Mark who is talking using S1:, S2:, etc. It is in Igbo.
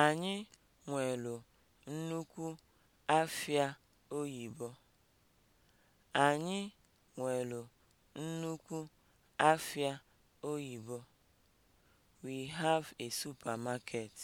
S1: Anyị nwelu nnukwu afịa oyibo. Anyị nwelu nnukwu afịa oyibo. We have a supermarket.